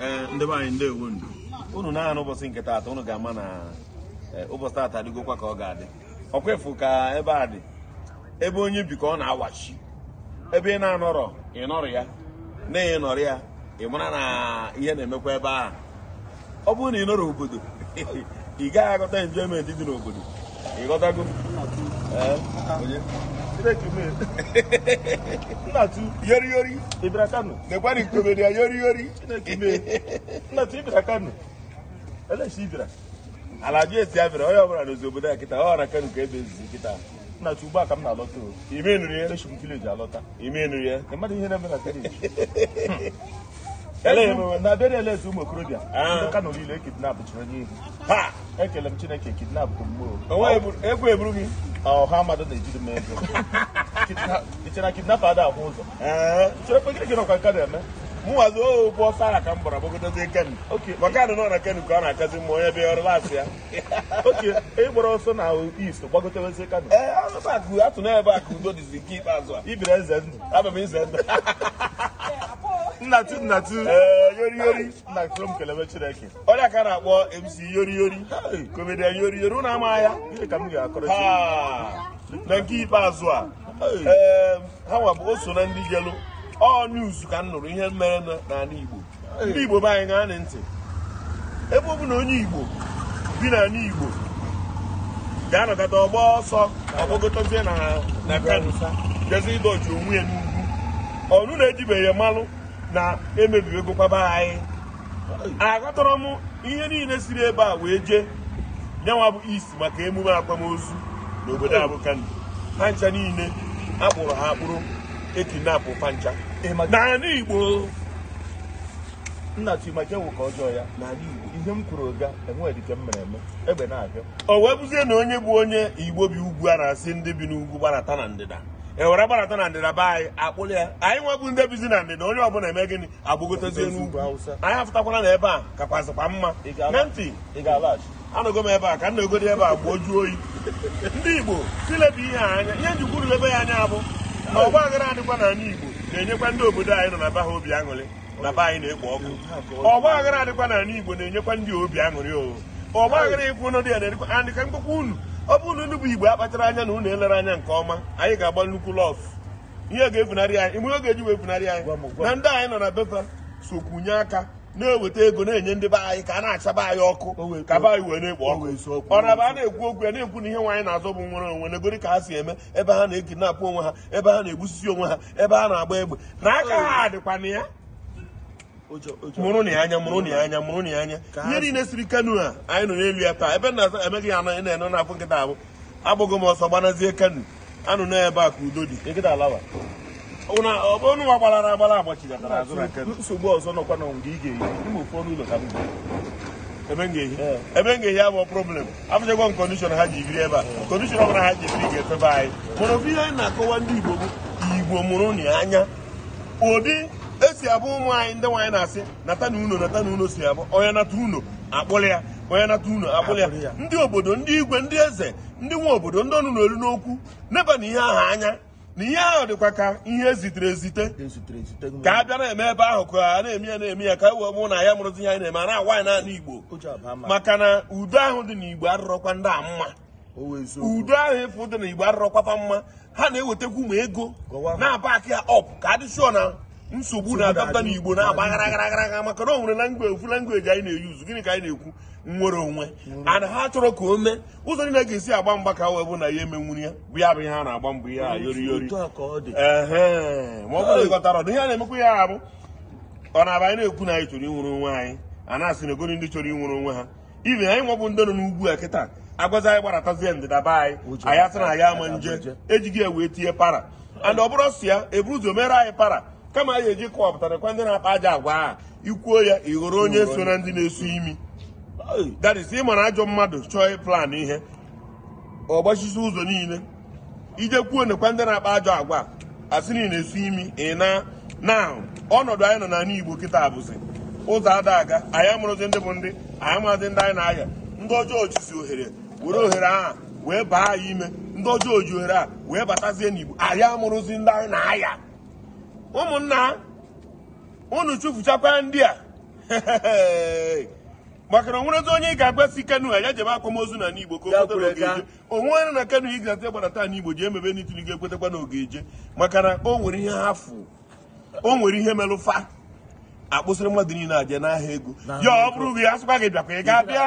ee eh, ndị anyị ndewo ndụ unu na-ahụ ụbọchị nke taata unu ga-ama na eh, ụbọchị taata adịgokwa ka ọ ga-adị ọkwefu ka ebe a dị ebe onye bi ka ọ na-awachi ebe ị na-anọrọ ịnọrọ ya na ịnọrọ ya ị mara na ihe na-emekwa ebe ahụ ọ bụrụ na ị nọrọ obodo ị gaghị aghọta enjoyment dị n'obodo ị breeki mee kano dekwara ikomedi ya yori yori chineke mee kano eleshi ịbịara ala ji ọbụla n'ozi obodo ya kịta ọ ghara kano ka ebe ezizi kịta nnatụ ugbu a m na ime alọta na bere eleze ụmụ okorobịa ndị ah. Kano niile e kidnap chụrụ onye ha ekele m Chineke kidnap bụ mmụọ egwu eburu gị ọha mmadụ na-ejide m ego ichena kidnap ada ahụ ụzọ eh. chere kpe gịnị ọkwa nka na-eme mụnwazi oh, ụgbọ sara ka m gbara gbagodozie ken maka nọ na ken ka ọ na-akazi mma onye bịa ọrụ lasị ya ịgbara ọsọ na ist gbagotewezie kano eh, atụ na a ka udo dịzi nke ikpeazụ a ibiri eze ndụ abụ m ize ndụ nnatu nnatu eh, yori yori na krom kelebe chineke ọrịa ka na-akpọ MC yori yori komedian yori yori ụnụ ama ya ihe ka m ga-akọrọ na nke ikpeazụ a ha nwa bụ o so na ndị gelu ọ news ka m nụrụ ihe mere n'ala Igbo ndị Igbo be anyị gaa ntị ebe ọ bụ na onye Igbo bi n'ala Igbo ga-anọkọta ọgba ọsọ ọgbọgotazie na kano jezi ịdọji onwe ya n'ugwu ọnụ na-ejibeghị mmanụ na emebiwego kwaba anyị aghọtọrọ m ihe niile siri ebe a wee jee nyanwa bụ isi maka emume akwamozu na obodo n'obodo abụkandi pancha niile akpụrụ ha akpụrụ ekinapụ pancha n'ala Igbo nna Chimaje wụ ka ọjọọ ya n'ala Igbo ihe m kwuru ga enwedike m mere eme egbe na-abịa o wee bụzie na onye bụ onye Igbo bi ugwu a na-asị ndị bi n'ugwu gbarata na ndịda ewere gbarata na ndịda be anyị akpụrụ ya anyị nwebụ ndị bizi na ndịda onye ọbụla eme gịnị agbagotazi n'ugwu anyị afụtakwala na ebe a kakwazịkwa mma na ntị anọgo m ebe a ka m ebe a gbuo juo oyi ndị igbo tilebụ ihe anya ihe njikwuru ebe ya anya abụ na ọgba aghara adịkwa na anyị igbo na-enyekwa ndị obodo anyị nọ na be ha obi aṅụrị na be anyị na-ekpo ọkụ ọgba aghara adịkwa na anyị igbo na-enyekwa ndị obi aṅụrị o ọgba aghara ịkwụ ụnụ ya na-edịkwa adịka mkpụkpụ unu ọ bụrụ na unu bụ igbo akpachara anya na unu elere anya nke ọma anyị ga-agba nnukwu lọf ihe ga-efunarị anyị ime eji wee funarị anyị na ndị anyị nọ na befa sokwunye aka na-eweta ego na-enye ndị be anyị ka a na-achaba anyị ọkụ ka be anyị wee na-ekpo ọkụ ọna ba a na-ekwu okwu ya na-ekwu na ihe nwaanyị na-azọ bụ nwere onwe negori ka ha si eme ebe ha na-ekinapụ onwe ha ebe ha na-egbusisi onwe ha ebe ha na-agba egbe na aka ha dịkwa na ya mụrụ na ya anya mụrụ na ya anya mụrụ na anya ihe niile siri kanu a anyị nọ n'elu ya taa ebe na-azụ emeghị anọ na enu na nkịta abụ agbụghị m ọsọ gbanazie kanu anụ ya ebe a ka udo dị nkịta alawa ọnụ nwa gbalara agbara agbachidatara azụ na kanu nsogbu na ị ga-ehi ka ebe m ga-ehi abụọ problem abụchakwa m kọndishọn ha ji ebe a kọndishọn ọbụla ha ji biri ga-efebe anyị mana anyị na-akọwa ndị igbo igbo mụrụ na anya ụdị esi abụ ụmụ anyị ndị nwaanyị na-asị nata uno nata uno si abụ onye nata uno akpụrụ ya onye nata uno akpụrụ ya ndị obodo ndị igwe ndị eze ndị nwa obodo ndị ọnụ n'olu n'okwu neba na ihe ahụ anya na ihe ahụ dịkwa ka ihe ezitere ezite ka a bịa na-eme ebe ahụ ka a na-eme ya na-eme ya ka wee mụ na ya mụrụzi ihe anyị na-eme a na-awa anyị naanị igbo maka na udo ahụ dị n'igbo arụrọkwa ndị a mma udo ahụ ịfụ dị igbo arụrọkwafa mma ha na-ewetakwu ụmụ ego na-aba aka ya ọp ka adịsụọ na nsogbu na-adapụta n'igbo na-agbagharagharaghara agba maka na onwere nwere langweji ofu langweji anyị na-eyuzu gịnị ka anyị na-ekwu nwere onwe ana ha chọrọ ka o mee ụzọ niile ga-esi agba mgba ka wee bụ na ya emenwuru ya bụ ya bụ ihe a na-agba mbọ ihe a yori yori ma ọ bụrụ ọdụ ihe a na-emekwa ya abụ ọ na-aba anyị na-ekwu na anyị chọrọ ịnwere onwe anyị a na-asị na egoro ndị chọrọ ịnwere onwe ha ibe anyị nwabụ ndị nọ n'ugwu a kịta agwazi anyị gbaratazie ndịda be anyị anyị asị na ya ama nje ejighị ya wee tinye para and ọ bụrụ sị ya eburu ụzọ mere anyị para kama anyị eji kọwapụtarakwa ndị na-akpa aja agwa a ikwuo ya ịghọrọ onye so na ndị na-esu imi that ị mara ajọ mmadụ chọọ plan ihe ọ gbachisi ụzọ niile ije kwuo nekwa ndị na-akpa ajọ agwa asị na ị na-esu imi ị na na ọnọdụ anyị nọ n'ala Igbo kịta abụzi ụzọ ada aga anyị amụrụzi ndị bụ ndị anyị amaghịzi ndị anyị na-aya ndị ọjọọ jisi ohere were ohere a wee baa ya ime ndị ọjọọ ji ohere a wee batazie n'Igbo anyị amụrụzi ndị anyị na-aya ụmụnna unu chụfụchakwa ndị a maka na onwerezi onye ị ga-agbasi kenu a ya jebe akwamozu na n'igbo ka o kweta n'ogeje onwere na kenu ị ga gbara taa n'igbo ji emebe n'itiligo ekwetakwa n'ogeje maka na o nwere ihe hafu o nwere ihe melụfa akpụsịrị mmadụ niile aja n'ahịa ego ya ọ bụrụ gị asịkwa gị bịakwa ị ga-abịa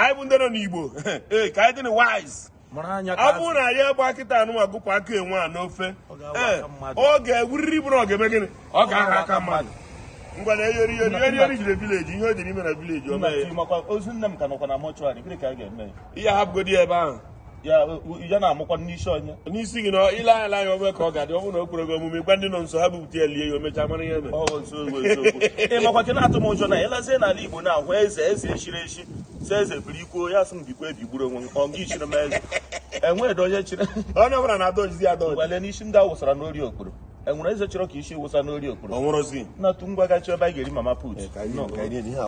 anyị bụ ndị nọ n'igbo ee ka anyị dị wise abụ na ya agba kịta anụnwa gụpụ aka enwe a n'ofe oge ọ ga bụrụ eh, ọ ga ọ ga-aha aka mmadụ ngwa na eyori yori yori yori jire vileji ihe o dịrị ime na vileji ozu nne m ka nọkwa na mọchụarị ka a ga-eme ihe hapụgodi ebe ahụ ya na-amụkwa n'isi onye n'isi gị na ile ala anya ọbụla ka ọ ga-adị ọ bụrụ na o gị omume gwa ndị nọ nso ya lie ya ihe Igbo na-ahụ eze si eze biri ikwuo ya sị m bikwa ebigburu onwe m ọ gị chiri m eze enweghị onye chiri onye ọbụla na-adọjizi adọji wele n'isi ndị awụsara wụsara n'ori okporo enwere eze chọrọ ka isi wụsa n'ori okporo na tụ ngwa gachi ebe a ga-eri mama put